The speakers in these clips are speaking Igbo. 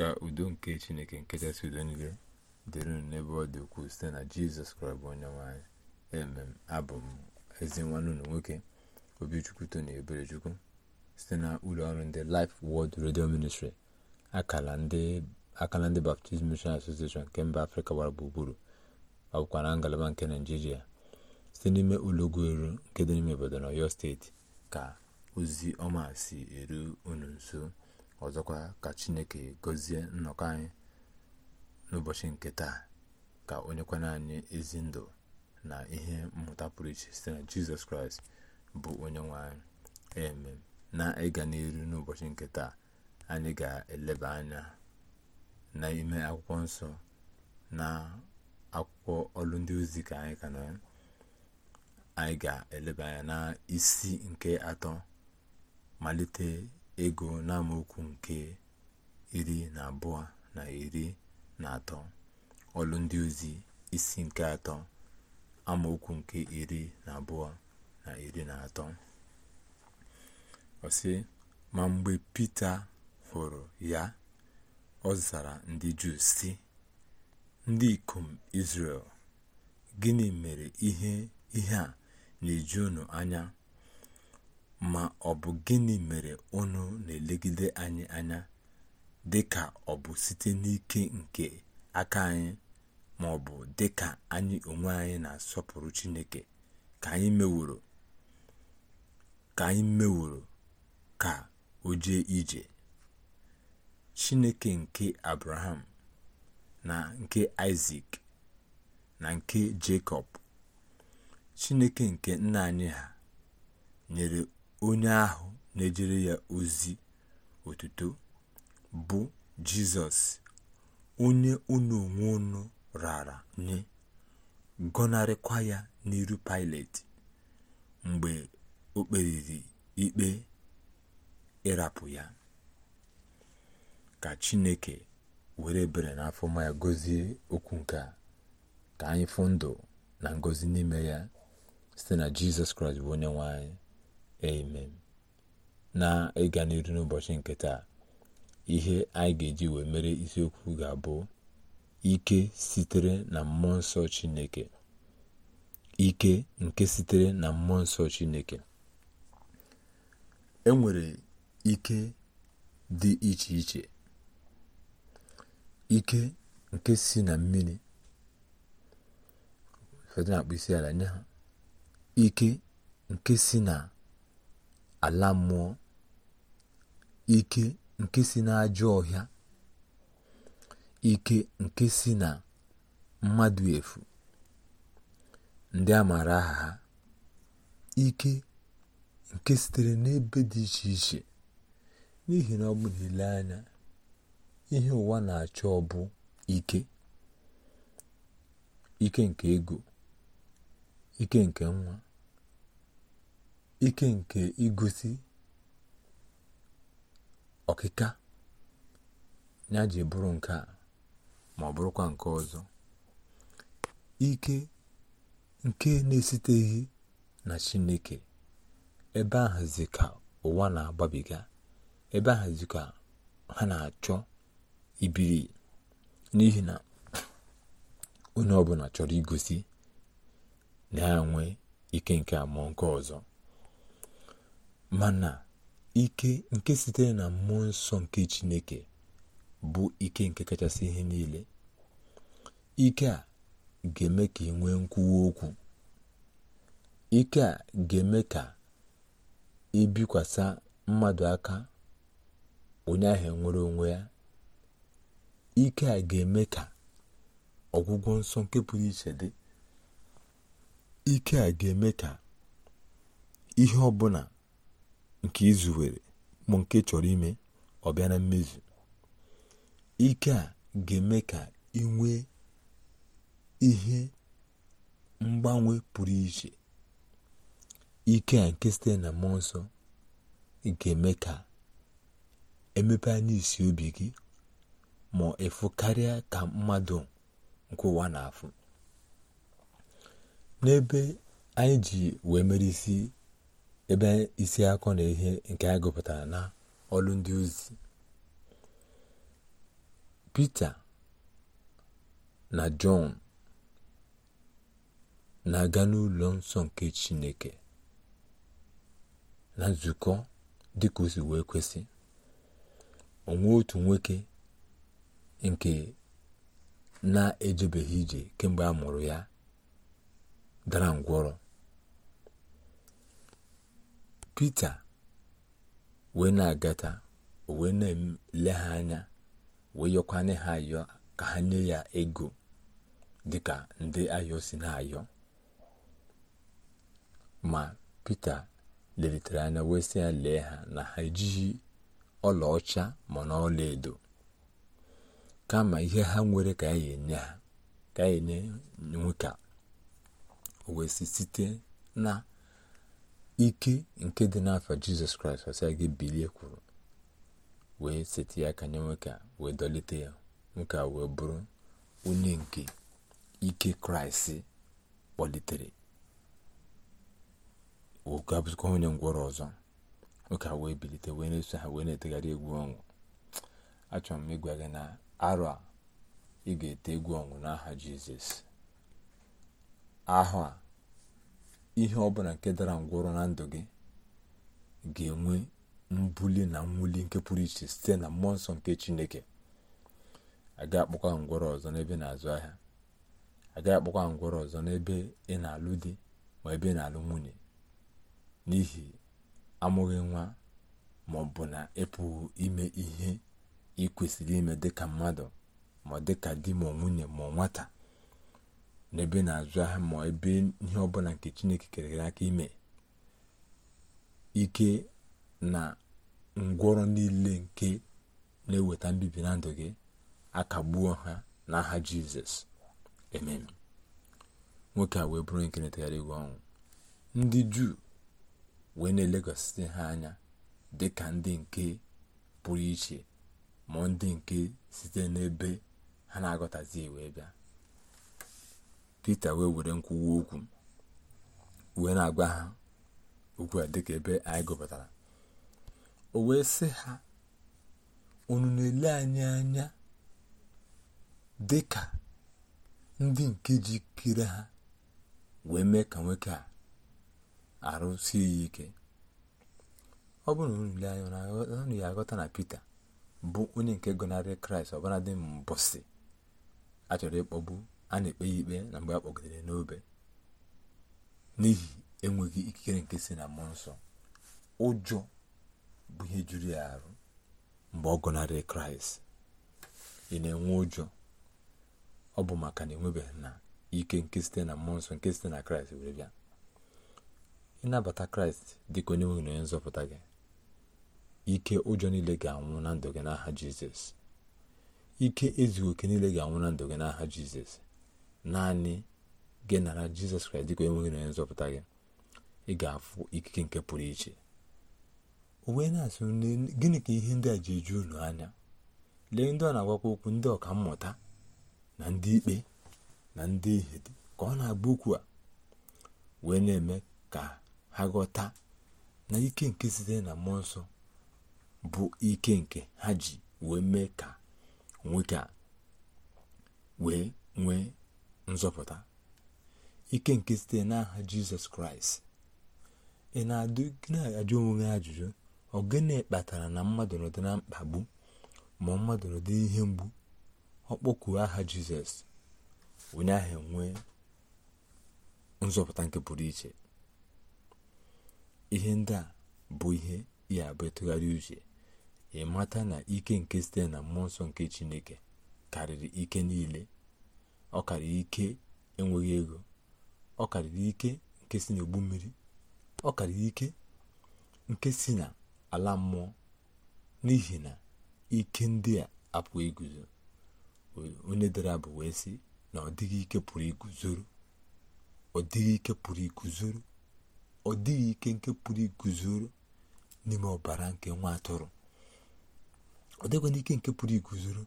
ka udo nke chineke nke kachasị udo niile dịrị n'ebe ọ dị ukwuu site na jizọs kraịst bụ onye nwanyị emem abụ m ezi nwanne unu nwoke obichukwu tony eberechukwu site na ụlọ ọrụ ndị Life wọd redio Ministry akala ndị Baptist Mission Association nke mba afrịka gbara gburugburu ọbụkwa na ngalaba nke naijiria site n'ime ụlọ eru nke dị n'ime obodo na steeti ka ozi ọma si eru unu nso ọzọkwa ka chineke gọzie nnọkọ anyị n'ụbọchị nke taa ka onyekwana anyị ezi ndụ na ihe mmụta pụrụ iche site na jizọs kraịst bụ onye nwe anyị eme na ịga n'iru n'ụbọchị nke taa anyị ga-eleba anya n'ime akwụkwọ nsọ na akwụkwọ ọrụ ndị ozi ka anyị anyị ga-eleba anya na isi nke atọ malite ego n'amaokwu nke iri na abụọ na iri na atọ ọlụ ndị ozi isi nke atọ amaokwu nke iri na abụọ na iri na atọ ọ ma mgbe Pita hụrụ ya ọ zara ndị Juu sị ndị ikom Izrel gịnị mere ihe a na-eju unu anya ma ọ bụ gịnị mere unu na-elegide anyị anya dị ka ọ bụ site n'ike nke aka anyị ma ọ bụ dị ka anyị onwe anyị na-asọpụrụ Chineke ka anyị meworo ka anyị meworo ka o jee ije Chineke nke Abraham na nke Isaac na nke Jekọb Chineke nke nna anyị ha nyere onye ahụ na-ejere ya ozi otuto bụ jizọs onye unu onwe unu rara nye gọnarịkwa ya n'iru pilet mgbe o kperiri ikpe ịrapụ ya ka chineke were bere n'afọ ma ya gozie okwu nke a ka anyị fụ ndụ na ngozi n'ime ya site na jizọs kraịst bụ onye nwe anyị amen na ịga n'iru n'ụbọchị nke taa ihe anyị ga-eji wee mere isiokwu ga-abụ ike sitere na mmụọ nsọ chineke ike nke sitere na mmụọ nsọ chineke e nwere ike dị iche iche ike nke si na mmiri ụfọdụ na-akpụ isi ala nye ha ike nke si na ala mmụọ ike nke si n'ajọ ọhịa ike nke si na mmadụ efu ndị a maara aha ha ike nke sitere n'ebe dị iche iche n'ihi na ọ bụ nile anya ihe ụwa na-achọ ọ bụ ike ike nke ego ike nke nwa ike nke igosi ọkịka ya ji bụrụ nke a ma ọ bụrụkwa nke ọzọ ike nke na esiteghi na chineke ebe ahazi ka ụwa na-agbabiga ebe ahazi ka ha na-achọ ibiri n'ihi na onye ọbụla chọrọ igosi na ya ike nke a ma nke ọzọ mana ike nke sitere na mmụọ nsọ nke chineke bụ ike nke kachasị ihe niile ike a ga-eme ka ị nwee nkwuwa okwu ike a ga-eme ka ibikwasa mmadụ aka onye ahụ nwere onwe ya ike a ga-eme ka ọgwụgwọ nsọ nke pụrụ iche dị ike a ga-eme ka ihe ọbụla nke izuwere bụ nke chọrọ ime ọ bịa na mmezu ike a ga-eme ka ị nwee ihe mgbanwe pụrụ iche ike a nke site na mmụọ nsọ ga-eme ka emepe anya isi obi gị ma ịfụ karịa ka mmadụ nke ụwa na-afụ n'ebe anyị ji wee mere isi ebe isi akọ na ihe nke a gụpụtara na ọlụ ndị ozi Pita na Jọn na-aga n'ụlọ nsọ nke Chineke na nzukọ dịka o si wee kwesị onwe otu nwoke nke na-ejebeghị ije kemgbe a mụrụ ya dara ngwọrọ Pita wee na-agata o wee na-ele ha anya wee yọkwanye ha ayọ ka ha nye ya ego dịka ndị ayọ si na-ayọ ma Pita lelitere anya wee sị ya lee ha na ha ejighị ọlaọcha ma na ọla edo kama ihe ha nwere ka ya enye ha ka ya enye nwoke wee site na ike nke dị n'afọ jizọs kraịst ọsịa gị bilie kwuru wee seti ya aka nye nwoke wee dọlite ya nwoke a wee bụrụ onye nke ike kraịst kpọlitere oge abụzikwa onye ngwọrọ ọzọ nwoke a wee bilite wee na-eso ha wee na-etegharị egwu ọnwụ achọrọ m ịgwa gị na arọ a ị ga-ete egwu ọnwụ n'aha jizọs ahụ ihe ọbụla nke dara ngwọrọ na ndụ gị ga-enwe mbuli na mwuli nke pụrụ iche site na mmụọ nsọ nke chineke aga akpọkwa ngwọrọ ọzọ n'ebe na-azụ ahịa aga akpọkwa ngwọrọ ọzọ n'ebe ị na-alụ di ma ebe ị na-alụ nwunye n'ihi amụghị nwa ma ọ bụ na ịpụghị ime ihe ị kwesịrị ime dịka mmadụ ma dịka di ma nwunye ma nwata n'ebe na-azụ ahịa ma ebe ihe ọbụla nke chineke kere aka ime ike na ngwọrọ niile nke na-eweta mbibi na ndụ gị akagbuo ha n'aha jizọs amen nwoke a wee bụrụ nke na-etegharị ọnwụ ndị juu wee na-elekwasị ha anya dị ka ndị nke pụrụ iche ma ndị nke site n'ebe ha na agọtazi wee bịa peter wee were nkwuwa okwu wee na-agwa ha okwu a dịka ebe anyị gụpụtara o wee sị ha unu na-ele anyị anya dịka ndị nke ji jikere ha wee mee ka nwoke a arụsie ya ike ọ bụrụ na anya ọnụ ya aghọta na peter bụ onye nke gọnarị Kraịst ọbụladị mbọsị a chọrọ ịkpọgbu a na-ekpe ya ikpe na mgbe a kpọgidere n'obe n'ihi enweghị ikikere nke si na mmụọ nsọ ụjọ bụ ihe juru ya arụ mgbe ọ gụnarị kraịst ị na-enwe ụjọ ọ bụ maka na enwebeghị na ike nke site na mmụọ nsọ nke site na kraịst were bịa ịnabata kraịst dị ka onye nwe na onye nzọpụta gị ike ụjọ niile ga-anwụ na ndụ gị n'aha jizọs ike ezughị oke niile ga-anwụ na ndụ gị n'aha jizọs naanị gị nara jizọs kraịst dịka enweghị na nzọpụta gị ị ga-afụ ikike nke pụrụ iche o wee na-asụ gịnị ka ihe ndị a ji eju ụlọ anya lee ndị ọ na-agwakwa okwu ndị ọka mmụta na ndị ikpe na ndị ihe ka ọ na-agba okwu a wee na-eme ka ha ghọta na ike nke sitere na mmụọ nsọ bụ ike nke ha ji wee mee ka nwoke a wee nwee nzọpụta ike nke site n'aha jizọs kraịst ị na-ajụ onwe gị ajụjụ ọ gịnị kpatara na mmadụ nọdị na mkpagbu ma mmadụ nọdị ihe mgbu ọ aha jizọs onye ahụ nwee nzọpụta nke pụrụ iche ihe ndị a bụ ihe ya bụ ịtụgharị uche ịmata na ike nke site na mmụọ nsọ nke chineke karịrị ike niile ọ karịrị ike enweghị ego ọ karịrị ike nke si n'ogbu mmiri ọ karịrị ike nke si na ala mmụọ n'ihi na ike ndị a apụghị iguzo onye dara bụ wee sị na ọ dịghị ike pụrụ iguzoro ọ dịghị ike pụrụ iguzoro ọ dịghị ike nke pụrụ iguzoro n'ime ọbara nke nwa atụrụ ọ dịghị n'ike nke pụrụ iguzoro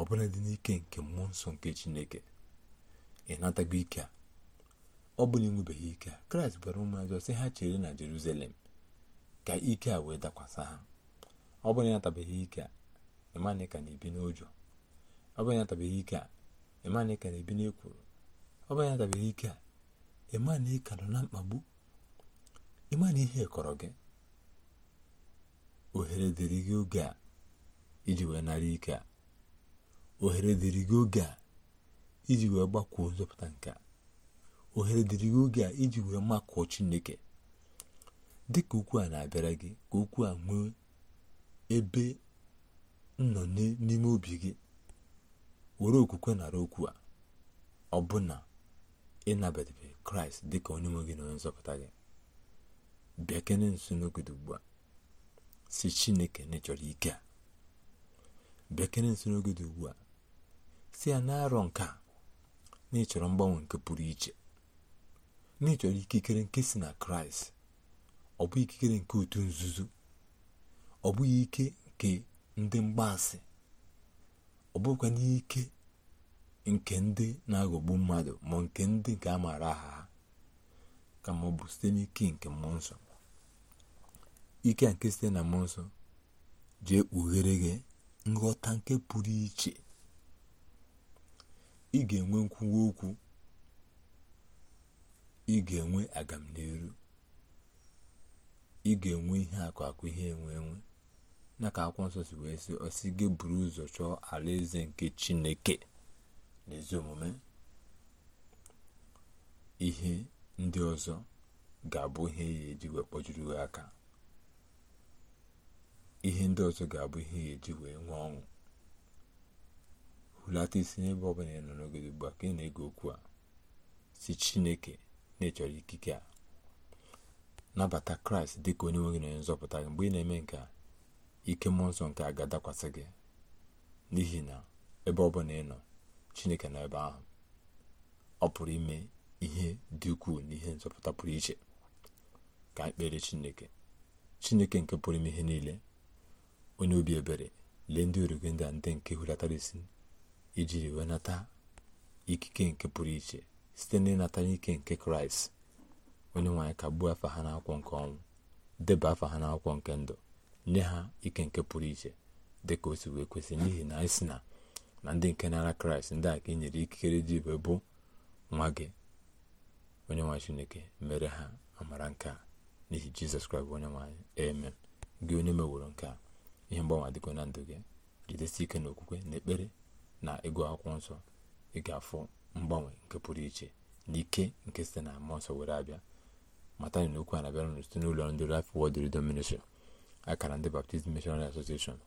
ọbụla dị n'ike nke mmụọ nsọ nke chineke ịnatago e ike a ọ bụla enwebeghị ike a kraịst gwara ụmụazị sị ha chere na Jeruzalem ka ike a wee dakwasị ha ọ bụla ịnatabeghị ike a ịmana ka na-ebi n'ụjọ ọ bụla ịnatabeghị ike a ịmana ka na-ebi n'ekworo ọ bụla ịnatabeghị ike a ịmana ịka nọ na mkpagbu ịmana ihe kọrọ gị ohere dịrị gị oge a iji wee nara ike a ohere dịrị gị oge a iji wee gbakwuo nzọpụta nke a ohere dịrị gị oge a iji wee makụọ chineke dị ka okwu a na-abịara gị ka okwu a nwee ebe nọ n'ime obi gị were okwukwe nara okwu a ọbụna ịnabatabe kraịst dị ka onye nwe gị na onye nzọpụta gị bịa nso n'ogodo ugbu a si chineke na ịchọrọ ike a ugbu a si ya na nke a na mgbanwe nke pụrụ iche na ikikere nke si na kraịst ọ bụ ikikere nke otu nzuzo ọ bụghị ike nke ndị mgbaasị ọ bụkwa n'ike nke ndị na-aghọgbu mmadụ ma nke ndị nke a maara aha ha kama ọ bụ site n'ike nke mmụọ nsọ ike nke site na mmụọ nsọ jee kpughere gị nghọta nke pụrụ iche ị ga-enwe nkwuwa okwu ị ga-enwe agamniru ị ga-enwe ihe akụ akụ ihe enwe enwe na ka akwụkwọ nsọ si wee sị ọsị gị buru ụzọ chọọ ala eze nke chineke na omume ihe ndị ọzọ ga-abụ ihe ya e eji wee kpọjuru aka ihe ndị ọzọ ga-abụ ihe ya e eji wee nwee ọṅụ hulata isi n'ebe ọ bụla ị nọ n'ogodo ugbu a ka ị na-ege okwu a si chineke na-echọrọ ikike a nabata kraịst dị ka onye nwe na onye nzọpụta gị mgbe ị na-eme nke a ike mmụọ nsọ nke a ga-adakwasị gị n'ihi na ebe ọ bụla ị nọ chineke nọ ebe ahụ ọ pụrụ ime ihe dị ukwuu na ihe nzọpụta pụrụ iche ka ekpere chineke chineke nke pụrụ ime ihe niile onye obi ebere lee ndị origo ndị a ndị nke hulatara isi ijiri wenata ikike nke pụrụ iche site n'ịnata n'ike nke kraịst onye nwaanyị gbuo afa ha n'akwụkwọ nke ọnwụ deba afa ha n'akwụkwọ nke ndụ nye ha ike nke pụrụ iche dị ka o si wee kwesị n'ihi na anyị si na na ndị nke nara kraịst ndị a ka e ikikere dị ibe bụ nwa gị onye nwaanyị chineke mere ha amara nke a n'ihi jizọs kraịst onye nwaanyị emen gị onye meworo nke a ihe mgbanwe adịgo na ndụ gị jidesi ike n'okwukwe na ekpere na ịgụ akwụkwọ nsọ ị ga-afụ mgbanwe nke pụrụ iche na ike nke site na mmụọ nsọ were abịa mata na okwu a na site n'ụlọ ndị Life Word Redemption akara ndị Baptist Missionary Association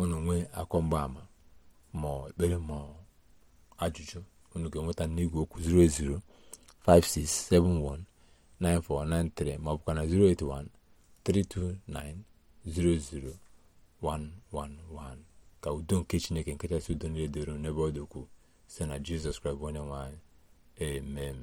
unu nwee akọ mgbaama ma ekpere ma ajụjụ unu ga-enweta n'igwe okwu 08056719493 ma ọ bụkwa na 081 329 00111 ka udo nke chineke nke kachasị udo niile doro n'ebe ọ dị ukwuu site na jizọs kraịst onye nwe amen